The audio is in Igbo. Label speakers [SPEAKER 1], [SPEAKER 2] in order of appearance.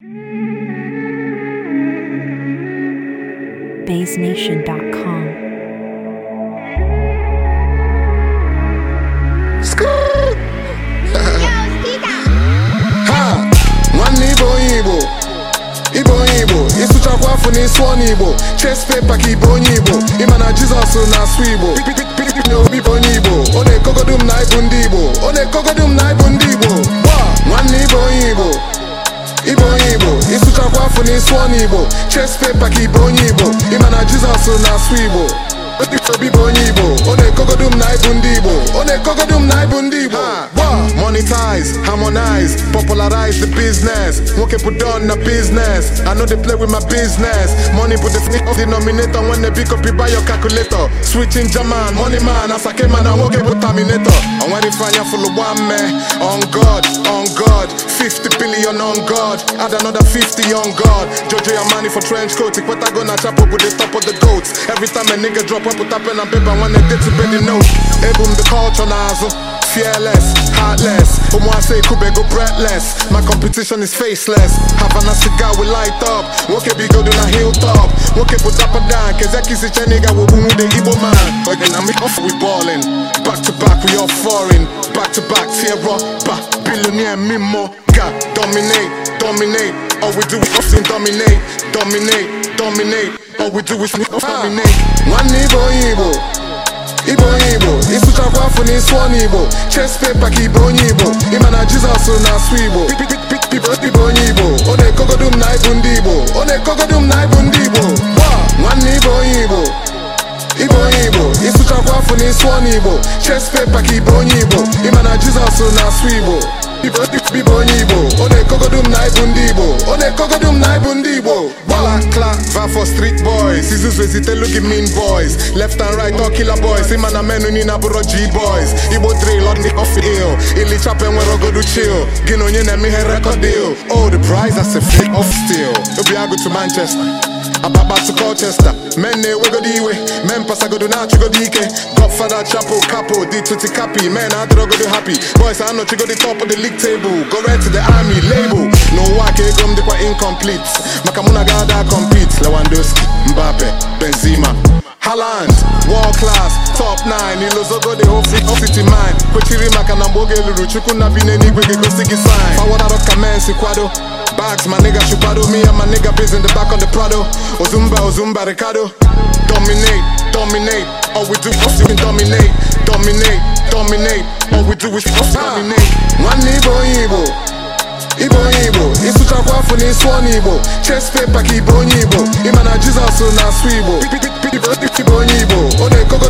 [SPEAKER 1] onye onye igbo igbo ịsụchakwa afọ na ịsụ ọnụ igbo ches pepa ka ibe onye igbo ịma na jizọs na-asụ igbo na obi bụ onye igbo ọ na m na ịbụ ndị igbo ọ na-ekogodum na ịbụ ndị igbo pụtakwa afọ n'isi ọnụ igbo chest paper ka ibe onye igbo ịma na jizọs na-asụ igbo obi bụ onye igbo ọ na-ekogodu m na ịbụ ndị igbo ọ na na ịbụ ndị igbo monetize, harmonize, popularize the business. Won't put down the business. I know they play with my business. Money put the sneak denominator when they pick up you buy your calculator. Switching German, money man, as I came and I won't get with Terminator. And when they find you full of one man, on God, on God, 50 billion on God, add another 50 on God. Jojo your money for trench coat, it what I gonna chop up with the top of the goats. Every time a nigga drop up, put up pen and paper when they did to bed the note. Ebum the culture nozzle. Fearless, heartless. say Kube go breathless. My competition is faceless. have Havana cigar we light up. Woke be good on a hilltop. Woke put up and down. Kezeki si cheniga we boom the Igbo man. Again, I'm off we ballin'. Back to back we all foreign. Back to back tear up. Back billionaire mimo. God dominate, dominate. All we do is often dominate, dominate, dominate. All we do is ah. dominate. One Igbo afụ n'isi igbo ches ibe onye igbo ịma na jizọs na-asụ ndị igbo ọ na-ekogodu m na ịbụ ndị igbo gba nwanne ibe onye igbo ibe onye igbo afọ n'isi ọnụ igbo ka ibe onye igbo ịma na jizọs na-asụ igbo ibe onye igbo ọ na ekogodum na ibu ndị igbo ọ na ekogodum na ibu ndị igbo gbala klava for street boys izuzu ezitelu gị mean boys left and right all killer boys ịma na menu niile abụrụ g boys igbo drill ọ dị off ill ilichapa enwere ogodu chill gị na onye na-eme ihe record deal old oh, prize as a flick of steel obi agụ manchester Ababatu Colchester Men na-ewegodo iwe men pasagodo na-achụgodo ike Godfather chapel Capo di tuti capi men adịrọgodo happy Boys di top of the league table Go rent to the army label N'ụwa ka ego m dịkwa incomplete Maka mụ na gada compete Lewandowski, Mbappe, Benzema Haaland, world class, top 9 Ilozogo dị ofiti mind Kwechiri maka na mgbe oge eluru Chukwu na bi ga sign ka men si kwado bags, my nigga chupado me and my nigga biz in the back of the Prado. Ozumba, oh, Ozumba, oh, Ricardo. Dominate, dominate. All we do dominate, dominate, dominate. All we do is fucking ah. dominate. One Igbo, Igbo. Igbo, Igbo. Ịsụchakwa afọ na ịsụ Igbo. Chess ka Igbo onye Igbo. Ịma na Jizọs na asụ Igbo. onye Igbo. Ọ